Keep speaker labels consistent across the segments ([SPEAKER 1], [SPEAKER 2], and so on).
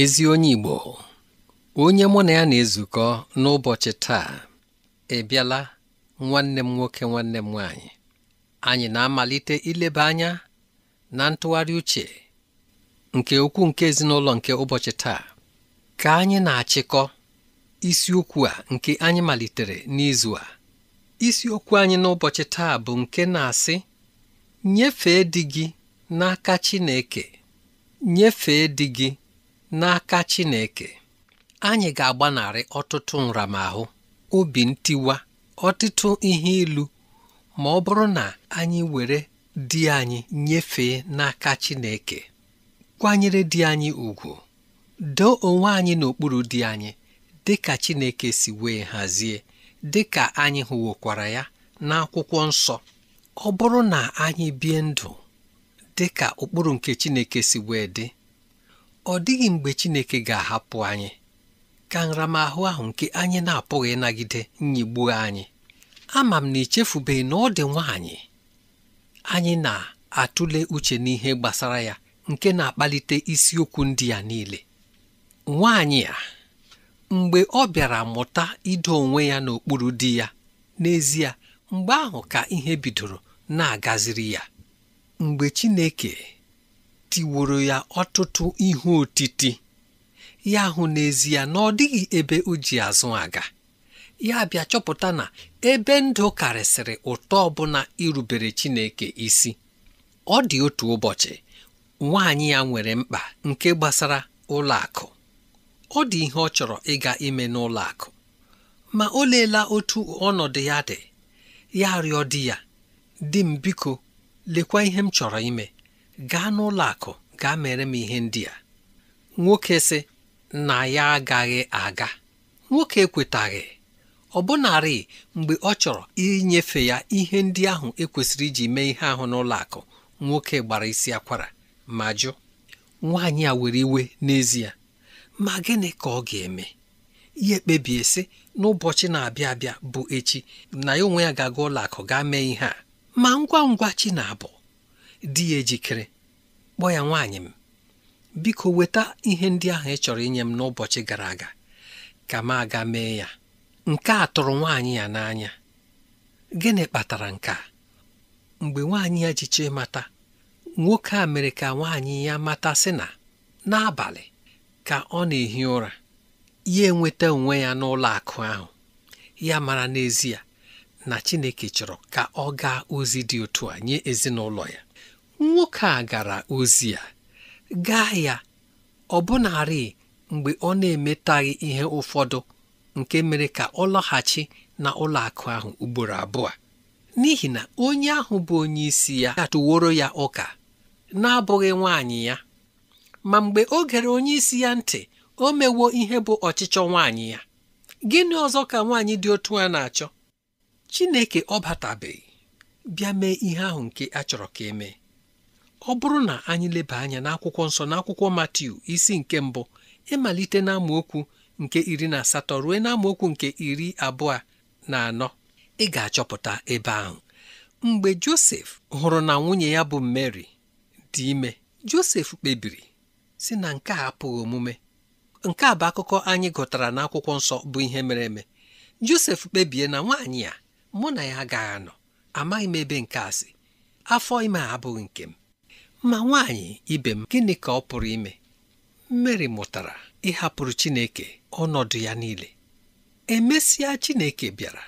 [SPEAKER 1] ezi onye Igbo onye mụ na ya na-ezukọ n'ụbọchị taa ebiala nwanne m nwoke nwanne m nwanyị anyị na-amalite ileba anya na ntụgharị uche nke ukwu nke ezinụlọ nke ụbọchị taa ka anyị na-achịkọ isiokwu a nke anyị malitere n'izu a isiokwu anyị n'ụbọchị taa bụ nke na-asị nyefee di gị n'aka Chineke nyefee di gị n'aka Chineke anyị ga-agbanarị ọtụtụ nramahụ obi ntiwa ọtụtụ ihe ilu ma ọ bụrụ na anyị were di anyị nyefee n'aka Chineke kwanyere di anyị ugwu doo onwe anyị n'okpuru di anyị dị ka Chineke si wee hazie dị ka anyị hụwokwara ya n'akwụkwọ nsọ ọ bụrụ na anyị bie ndụ dị ka ụkpụrụ nke Chineke si wee dị ọ dịghị mgbe Chineke ga-ahapụ anyị ka nramahụ ahụ nke anyị na-apụghị ịnagide nyigbu anyị ama m na echefubeghị na ọ dị nwaanyị anyị na-atụle uche n'ihe gbasara ya nke na-akpalite isiokwu ndị ya niile nwaanyị a mgbe ọ bịara mụta ido onwe ya n'okpuru di ya n'ezie mgbe ahụ ka ihe bidoro na-agaziri ya mgbe Chineke tiworo ya ọtụtụ ihe otiti ya hụ n'ezie na ọ dịghị ebe o ji azụ aga ya bịa chọpụta na ebe ndụ karịsịrị ụtọ ọbụla irubere Chineke isi ọ dị otu ụbọchị nwaanyị ya nwere mkpa nke gbasara ụlọakụ ọ dị ihe ọ chọrọ ịga ime n'ụlọakụ ma o leela otu ọnọdụ ya dị ya rịọ di ya di m biko lekwa ihe m chọrọ ime gaa n'ụlọ akụ gaa mere m ihe ndị a nwoke sị na ya agaghị aga nwoke ekwetaghị ọbụnarị mgbe ọ chọrọ inyefe ya ihe ndị ahụ ekwesịrị iji mee ihe ahụ n'ụlọ akụ nwoke gbara isi akwara ma jụ nwaanyị a were iwe n'ezie ma gịnị ka ọ ga-eme ihe ekpebie sị n'ụbọchị na-abịa abịa bụ echi na ya onwe ya ga-aga ụlọ akụ gaa mee ihe a ma ngwa ngwa chi na-abụ di ya ejikere kpọọ ya nwaanyị m biko weta ihe ndị ahụ ị chọrọ inye m n'ụbọchị gara aga ka m aga mee ya nke a tụrụ nwaanyị ya n'anya gịnị kpatara nke a mgbe nwaanyị ya ji mata mata nwoke a mere ka nwaanyị ya mata sị na n'abalị ka ọ na-ehi ụra ya enweta onwe ya n'ụlọ akụ ahụ ya mara n'ezie na Chineke chọrọ ka ọ gaa ozi dị otu a nye ezinụlọ ya nwoke a gara ozi ya gaa ya ọbụnarị mgbe ọ na-emetaghị ihe ụfọdụ nke mere ka ọ lọghachi na ụlọakụ ahụ ugboro abụọ n'ihi na onye ahụ bụ onye isi ya atụworo ya ụka na-abụghị nwaanyị ya ma mgbe o gere onye isi ya ntị o mewo ihe bụ ọchịchọ nwanyị ya gịnị ọzọ ka nwaanyị dị otu a na-achọ Chineke ọ batabeghị bịa mee ihe ahụ nke a chọrọ ka emee ọ bụrụ na anyị leba anya n'akwụkwọ nsọ n'akwụkwọ Matiu isi nke mbụ ịmalite n'amaokwu nke iri na asatọ ruo n'amaokwu nke iri abụọ na anọ ị ga-achọpụta ebe ahụ mgbe Josef hụrụ na nwunye ya bụ Mary dị ime Josef kpebiri si na nke a apụghị omume nke a bụ akụkọ anyị gụtara n'akwụkwọ nsọ bụ ihe mere eme Josef kpebie na nwaanyị a mụ na ya agaghị anọ amaghị m ebe nke a si afọ ime a abụghị nke m ma nwaanyị ibe m gịnị ka ọ pụrụ ime Mary mụtara ịhapụrụ Chineke ọnọdụ ya niile emesịa Chineke bịara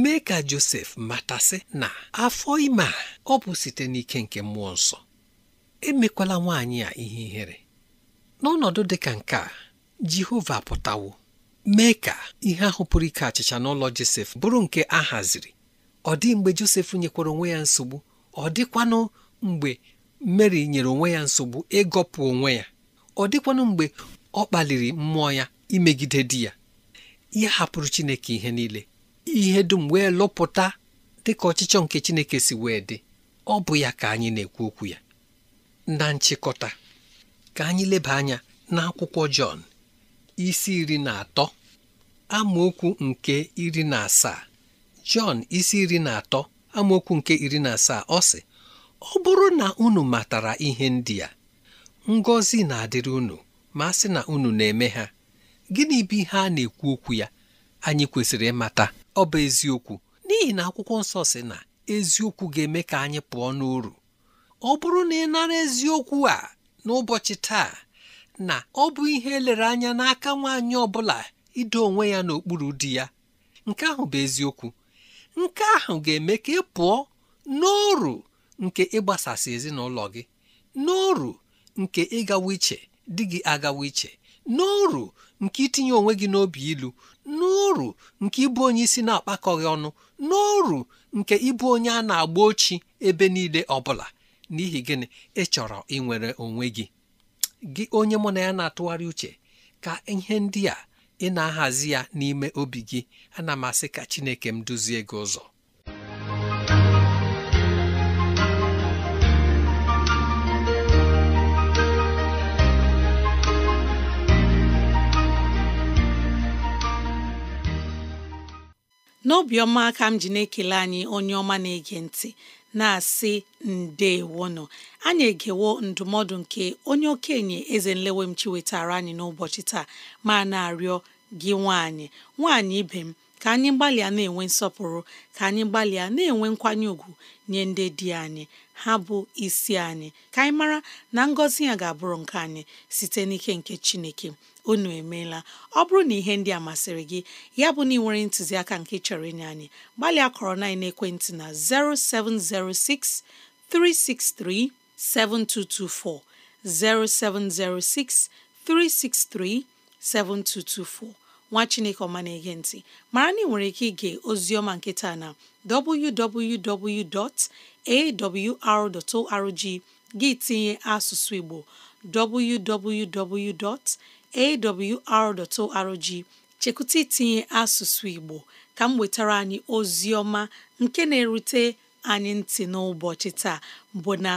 [SPEAKER 1] mee ka Josef matasị na afọ ime a ọ bụ site n'ike nke mmụọ nsọ emekwala nwaanyị a ihe ihere n'ọnọdụ dị ka nke a Jehova pụtawo mee ka ihe ahụ pụrụ ike achịcha n'ụlọ Josef bụrụ nke a haziri ọ dị mgbe Josef nyekwara onwe ya nsogbu ọ dịkwanụ mgbe mary nyere onwe ya nsogbu ịgọpụ onwe ya ọ dịkwanụ mgbe ọ kpaliri mmụọ ya imegide di ya ya hapụrụ chineke ihe niile ihe dum wee lụpụta dịka ọchịchọ nke chineke si wee dị ọ bụ ya ka anyị na-ekwu okwu ya na nchịkọta ka anyị leba anya n'akwụkwọ Jọn isi iri na atọ amaokwu nke iri na asaa Jọn isi iri na atọ amaokwu nke iri na asaa ọ si ọ bụrụ na unu matara ihe ndị a ngọzi na-adịrị unu ma a sị na unu na-eme ha gịnị bụ ihe a na-ekwu okwu ya anyị kwesịrị ịmata ọ bụ eziokwu n'ihi na akwụkwọ nsọ sị na eziokwu ga-eme ka anyị pụọ n'uru ọ bụrụ na ị nara eziokwu a n'ụbọchị taa na ọ bụ ihe elere anya n'aka nwaanyị ọ bụla ido onwe ya n'okpuru di ya nke ahụ bụ eziokwu nke ahụ ga-eme ka ị pụọ n'oru nke ịgbasasị ezinụlọ gị n'oru nke ịgawa iche di gị agawa iche n'oru nke itinye onwe gị n'obi ilu n'oru nke ịbụ onye isi na-akpakọghị ọnụ n'oru nke ịbụ onye a na-agba ochi ebe niile ọ bụla n'ihi gịnị ịchọrọ ịnwere onwe gị gị onye mụ na ya na-atụgharị uche ka ihe ndị a ị na-ahazi ya n'ime obi gị ana m asị ka Chineke m duzie gị ụzọ
[SPEAKER 2] n'obiọma aka m ji na-ekele anyị onye ọma na-ege ntị na-asị nọ anyị egewo ndụmọdụ nke onye okenye eze nlewe m chiwetara anyị n'ụbọchị taa ma na-arịọ gị nwaanyị nwaanyị ibe m ka anyị gbalịa na-enwe nsọpụrụ ka anyị gbalịa na-enwe nkwanye ùgwù nye ndị di anyị ha bụ isi anyị ka anyị mara na ngọzi ya ga-abụrụ nke anyị site n'ike nke chineke unu emeela ọ bụrụ na ihe ndị a masịrị gị ya bụ na ị nwere ntụziaka nke chọrọ inye anyị gbalịa kọrọ na ekwentị na 0706 363 7224 0706 363 7224 nwa chineke ọma na-ege ntị mara na ị nwere ike ige oziọma nketa na www.awr.org gị tinye asụsụ igbo www.awr.org chekwụta itinye asụsụ igbo ka m wetara anyị oziọma nke na-erute anyị ntị n'ụbọchị taa bụ na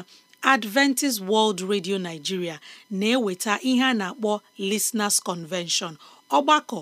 [SPEAKER 2] Adventist World Radio Nigeria na-eweta ihe a na-akpọ lesnars Convention ọgbakọ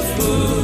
[SPEAKER 3] food.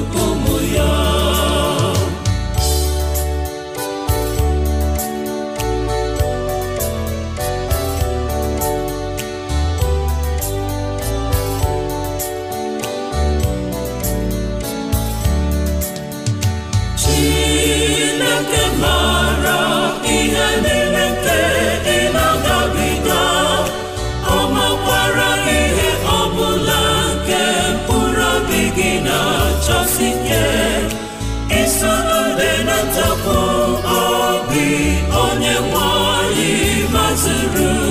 [SPEAKER 3] Spirit.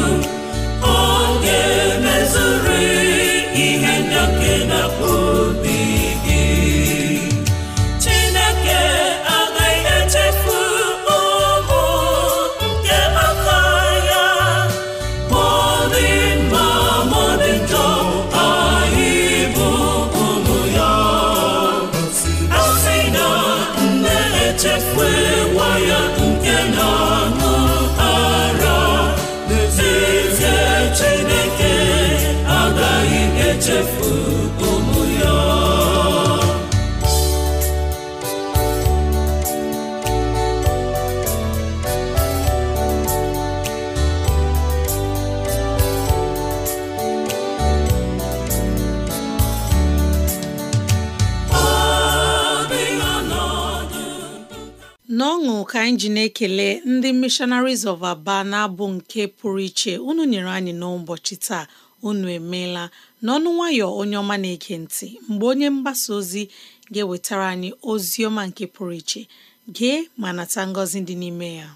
[SPEAKER 2] ka anyị na-ekele ndị Missionaries of Aba na-abụ nke pụrụ iche unu nyere anyị n'ụbọchị taa unu emeela n'ọnụ nwayọ onye ọma na-ege ntị mgbe onye mgbasa ozi ga-ewetara anyị ozi ọma nke pụrụ iche gee ma nata ngọzi dị n'ime ya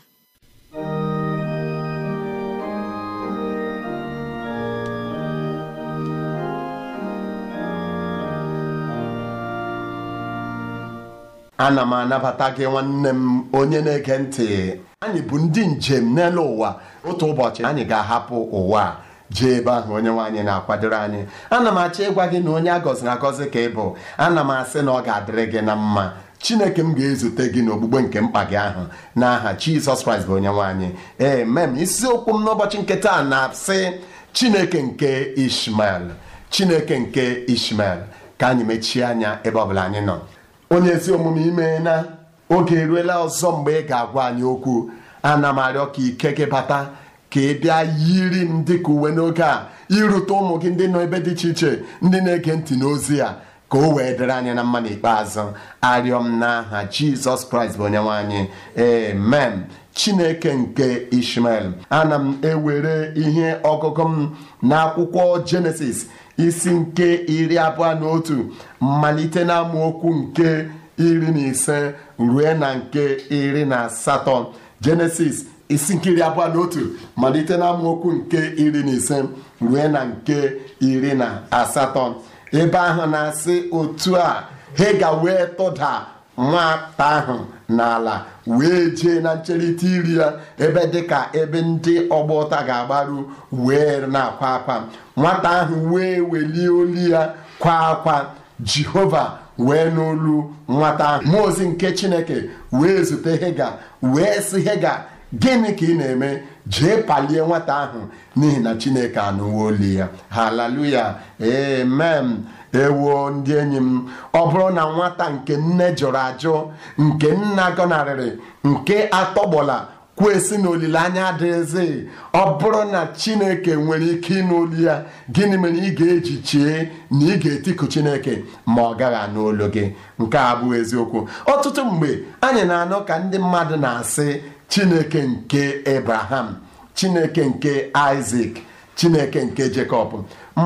[SPEAKER 4] ana m anabata gị nwanne m onye na-ege ntị anyị bụ ndị njem n'elu ụwa otu ụbọchị anyị ga-ahapụ ụwa jee ebe ahụ onye nwaanyị na-akwadoro anyị ana m achọ ịgwa gị na onye a gọziri agọzi ka ị bụ ana m asị na ọ ga-adịrị gị na mma chineke m ga-ezute gị n'ogbugbe nke mkpa gị ahụ n'aha jizọs kraịst bụ onye nwaanyị ee mem isiokwu m n'ụbọchị nke na-asị chineke nke ishmael chineke nke ishmael ka anyị mechie anya ebe ọbụla anyị nọ onye ezi omume ime na oge eruela ọzọ mgbe ị ga-agwa anyị okwu ana m arịọ ka ike gị bata ka ị bịa yiri m dịka uwe n'oge a irute ụmụ gị ndị nọ ebe dị iche iche ndị na-ege ntị n'ozi a ka o wee dịrị anyị na mma n'ikpeazụ arịọ m n'aha jizọs kraịst bụ onyenwe anyị amen chineke nke ishmael ana m ewere ihe ọgụgụ m n'akwụkwọ jenesis isi nke iri abụọ na otu malite na amaokwu nke iri na ise rue na nke iri na asatọ jenesis isi nke iri abụọ na otu malite na amaokwu nke iri na ise rue na nke iri na asatọ ebe ahụ na-asị otu a hega wee tụda nwata ahụ n'ala wee jee na ncherịta iri ya ebe dịka ebe ndị ọgba ụta ga-agbaru wee na-akwa akwa nwata ahụ wee welie olu ya kwa akwa jehova wee n'olu nwata ahụ mmụọ ozi nke chineke wee zute hega wee sị hega gịnị ka ị na-eme jee palie nwata ahụ n'ihi na chineke anụwo olu ya haleluya emem ewo ndị enyi m ọ bụrụ na nwata nke nne jụrụ ajụ nke nna gọnarịrị nke atọgbọla kwesị na olileanya adịghịzị ọ bụrụ na chineke nwere ike ịnụ olu ya gịnị mere ị ga-eji chie na ị ga-etiku chineke ma ọ gaghị anụ gị nke a eziokwu ọtụtụ mgbe anyị na-anọ ka ndị mmadụ na-asị chineke nke Abraham chineke nke Isaac chineke nke Jekọb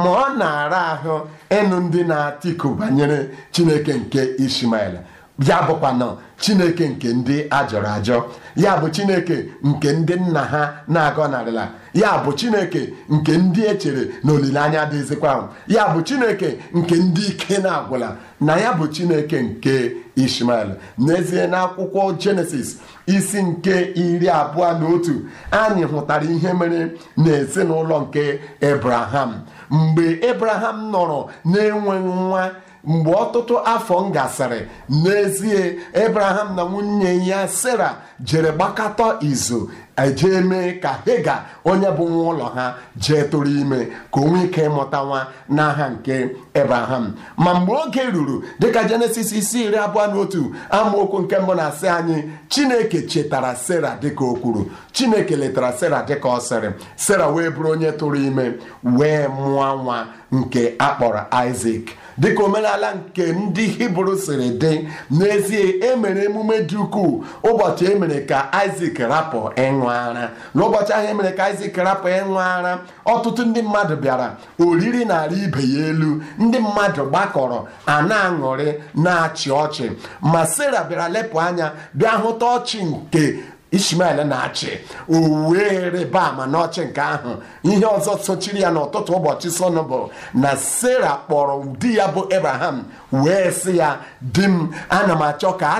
[SPEAKER 4] ma ọ na-ara ahụ ịnụ ndị na-atịku banyere chineke nke Ishmael ya bụkwanụ chineke nke ndị ajọrọ ajọ ya bụ chineke nke ndị nna ha na-agọnarịla ya bụ chineke nke ndị echere na olileanya dịzikwa ya bụ chineke nke ndị ike na-agwụla na ya bụ chineke nke ishmael n'ezie na akwụkwọ jenesis isi nke iri abụọ na otu anyị hụtara ihe mere n'ezinụlọ nke ebraham mgbe ebraham nọrọ na-enweghị nwa mgbe ọtụtụ afọ m gasịrị n'ezie Abraham na nwunye ya sara jere gbakọtọ izu eje mee ka hega onye bụ nwa ụlọ ha jee tụrụ ime ka o nwee ike ịmụta nwa n'aha nke ebraham ma mgbe oge ruru dịka jenesis isi iri abụọ na otu amaokwu nke mbụ na-asị anyị chineke chetara sera dịka o kwuru chineke letara sera dịka ọ sịrị sera wee bụrụ onye tụrụ ime wee mụọ nwa nke akpọrọ isak dịka omenala nke ndị hibru siri dị n'ezie emere emume dị ukwuu ụbọchị emere mere ka isak rapụ ịṅụ ara n'ụbọchị ahụ emere ka isak rapụ ịṅụ ara ọtụtụ ndị mmadụ bịara oriri narị ibe ya elu ndị mmadụ gbakọrọ a na-aṅụrị na-achị ọchị ma sera bịara lepụ anya bịa hụta ọchị nke ishmael na-achị o wee rịba ama n'ọchị nke ahụ ihe ọzọ sochiri ya n'ụtụtụ ụbọchị sọnụ bụ na sara kpọrọ di ya bụ abraham wee sị ya di m ana m achọ ka a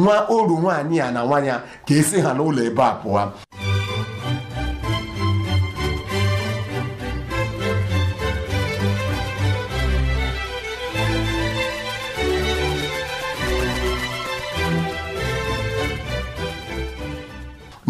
[SPEAKER 4] nwa oru nwaanyị ya na nwa ya ka esi ha n'ụlọ ebe a pụọ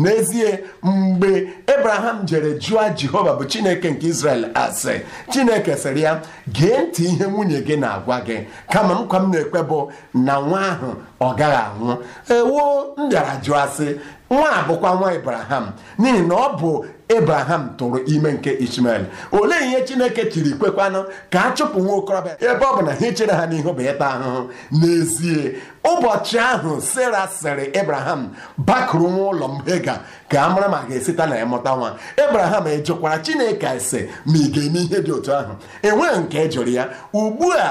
[SPEAKER 4] n'ezie mgbe ebraham jere jụọ jehova bụ chineke nke israel asị chineke sịrị ya gee ntị ihe nwunye gị na-agwa gị kama nkwa m na ekpe bụ na nwa ahụ ọ gaghị anwụ ewu m bịara jụọ asị nwa abụkwa nwa ibraham n'ihi na ọ bụ ebraham tụrụ ime nke Ishmael olee ihe Chineke chiri kwekwanụ ka a chụpụ nwa okorobịa ebe ọ bụ na ha ichere ha n'ihu bụ ịta ahụhụ n'ezie ụbọchị ahụ sara sịrị ebraham bakụrụ nwa ụlọ m Hega ka a mara ma ga-esita na ya mụta nwa ebraham ejekwara Chineke ase ma ị ga-eme ihe dị otu ahụ enweghị nke e jụrụ ya ugbu a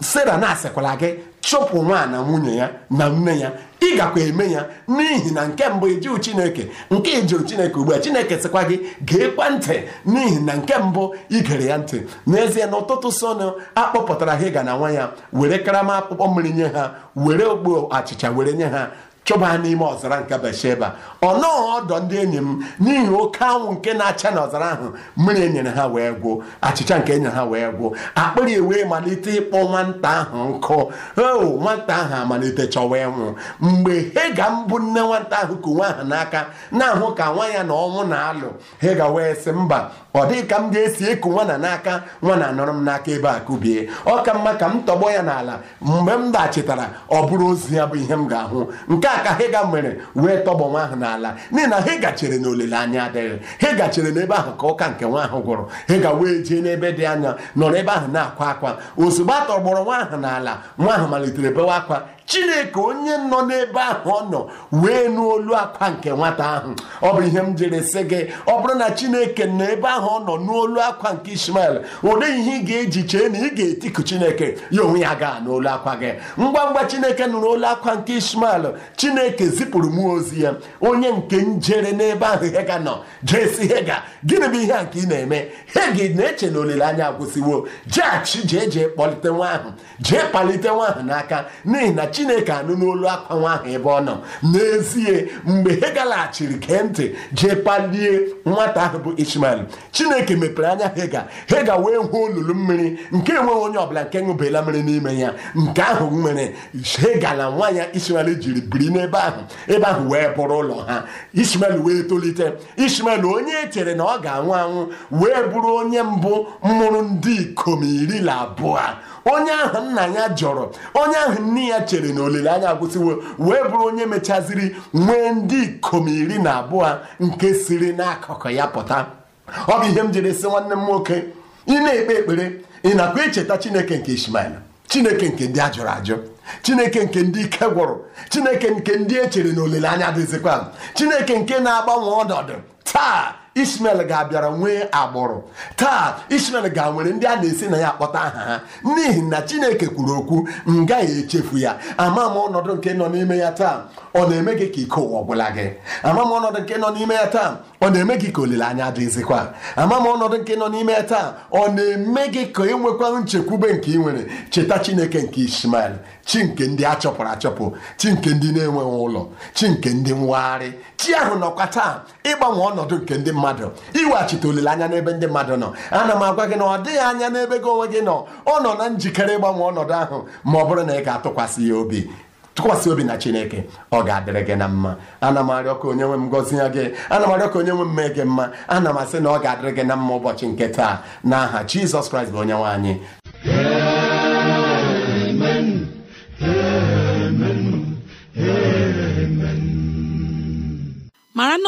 [SPEAKER 4] sara na-asịkwala gị chụpụ nwa na nwunye ya na nne ya ị gakwa eme ya n'ihi na nke mbụ ijiụ chineke nke ijiụ chineke ugbu a chineke sịkwa gị ga-ekwa ntị n'ihi na nke mbụ igere ya ntị n'ezie na ụtụtụ sonu akpọpụtara hega na nwa ya were karama akpụkpọ mmiri nye ha were okpo achịcha were nye ha chụbaa n'ime ọzara nke Besheba ọnọọ ọdọ ndị enyi m n'ihi oke anwụ nke na-acha n'ọzara ahụ mmiri enyere ha wee gwụ achịcha nke enyere ha wee gwụ akpịrị e wee malite ịkpọ nwata ahụ nkụ o oh, nwata ahụ amalite chọwa ịnwụ mgbe hega mbụ nne nwata ahụ ku nwa ahụ n'aka na-ahụ ka nwa ya na ọnwụ na-alụ hega wee sị mba ọ dịghị ka m ga-esi ịkụ nwana n'aka nwana anọrọ m n'aka ebe a kubie ọ ka mma ka m tọgbọ ya n'ala mgbe m dachitara ọ bụrụ ozu ya bụ ihe m ga-ahụ nke ya ka hega mere wee tọgbọ nwa ahụ n'ala n'ihi na hega gachere na olileanya adịghị hega gachere n'ebe ahụ ka ụka nke nwa ahụ gwụrụ ga wee jee n'ebe dị anya nọrọ ebe ahụ na-akwa akwa ozugbo a tọgbọrọ nwa ahụ n'ala nwa ahụ malitere bewa akwa chineke onye nọ n'ebe ahụ ọ nọ wee nụ olu akwa nke nwata ahụ ọ bụ ihe m jere sị gị ọ bụrụ na chineke nọ ebe ahụ ọ nọ n'olu akwa nke ishmael ụdị ihe ị ga-eji chee na ị ga-etiku chineke ya onwe ya gaa n'olu akwa gị ngwa ngwa chineke nụrụ n'olu akwa nke ishmael chineke zipụrụ mụọ ozi ya onye nke njere n'ebe ahụ hega nọ jee si hega gịnị bụ ihe a nke ị na-eme hegi na-eche na olileanya agwụsịwo jeghachi jee jee kpọlite nwa ahụ jee kpalite nwa ahụ n'aka n'ihi na chi chineke anụ n'olu akwa nwa ahụ ebe ọ nọ n'ezie mgbe ha galaghachiri gee ntị jee kpalie nwata ahụ bụ ishmael chineke mepere anya hega hega wee hụ olulu mmiri nke enweghị onye ọbụla nke ṅụbela mmiri n'ime ya nke ahụ nwere hega na nwa ya ishmael jiri biri n'ebe ahụ ebe ahụ wee bụrụ ụlọ ha ishmael wee tolite ishmael onye e chere na ọ ga-anwụ anwụ wee bụrụ onye mbụ mụrụ ndị ikom iri na abụọ onye ahụ nna ya jọrọ onye ahụ nne ya chere na olileanya agwụsịwo wee bụrụ onye mechaziri nwee ndị ikom iri na abụọ nke siri n'akụkụ ya pụta ọ bụ ihe m jiri sị nwanne m nwoke ị na-ekpe ekpere ị na-akwa icheta chineke nke ishmael chineke nke ndị ajụrụ ajụ chineke nke ndị ike gwụrụ chineke nke ndị echere na olileanya dịzikwa chineke nke na-agbanwe ọnọdụ taa ismael ga-abịara nwee agbụrụ taa ismel ga nwere ndị a na-esi na ya akpọta aha ha n'ihi na chineke kwuru okwu m gaghị echefu ya ama m ọnọdụ nke nọ n'ime ya taa ọ na-eme gị ka ike ụwa ọbụla gị ama m ọnọdụ nke nọ n'ime ya taa ọ na-eme gị ka olileanya dịzikwa ama m ọnọdụ nke nọ n'ime ya taa ọ na-eme gị ka ịnwekwa nchekwube nke ị nwere cheta chineke nke ismael chi nke ndị a chọpụrụ achọpụ chi nke ndị na-enweghị ụlọ chi nke ndị nwagharị chi ahụ nọkwa taa ịgbanwe ọnọdụ nke ndị mmadụ iweghachite olileanya n'ebe ndị mmadụ nọ ana m agwa gị na ọ dịghị anya n'ebe gị onwe gị nọ ọ nọ na njikere ịgbanwe ọnọdụ ahụ ma ọ bụrụ na ị ga-atụkwasị ya obi tụkwasị obi na chineke ọ ga-adịrị gị na mma ana m arịọ ka onye nwe m gọzie gị ana m arịọ ka onye nwe m mee gị mma ana m asị na ọ ga-adịrị gị na mma ụbọchị nke taa n'aha aha jizọs kraịst bụ onye nwe anyị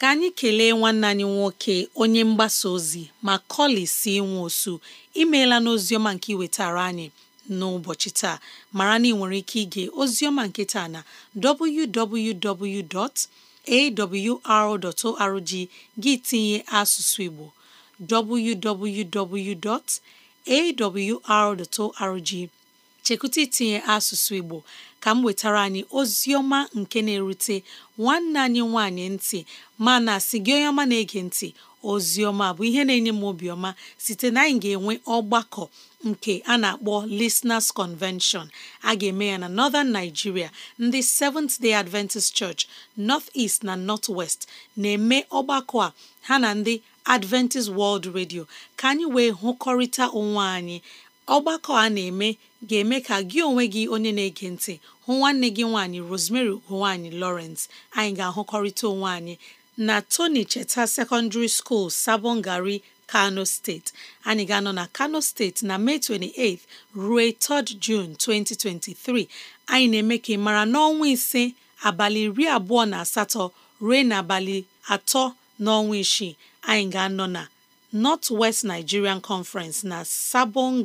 [SPEAKER 2] ka anyị kelee nwanne anyị nwoke onye mgbasa ozi ma si nwe osu imeela n'oziọma nke iwetara anyị n'ụbọchị taa mara na ị nwere ike ige ozioma nke taa na www.awr.org gị tinye asụsụ Igbo www.awr.org chekwụta itinye asụsụ Igbo ka m wetara anyị ozi ọma nke na-erute nwanne anyị nwanyị ntị mana sị gị onye ọma na-ege ntị ozi ọma bụ ihe na-enye m obiọma site na anyị ga-enwe ọgbakọ nke a na-akpọ Listeners Convention a ga-eme ya na Northern Nigeria ndị Seventh Day Adventist Church North East na North West na-eme ọgbakọ a ha na ndị Adventist World Radio ka anyị wee hụkọrịta onwe anyị ọgbakọ a na-eme ga-eme ka gị onwe gị onye na-ege ntị hụ nwanne gị nwaanyị Rosemary ugonwaanyị Lawrence anyị ga-ahụkọrịta onwe anyị na Tony Cheta Secondary School Sabongari Kano steeti anyị ga-anọ na Kano steeti na Mee 28 ruo 3 June 2023 anyị na-eme ka ị mara n'ọnwa ise abalị iri abụọ na asatọ ruo n'abalị atọ n'ọnwa isii anyị ga-anọ na North West Nigerian Conference na Sabon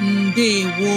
[SPEAKER 2] ndewo